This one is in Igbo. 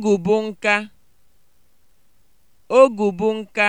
Ogù bụ nka. Ogù bụ nka.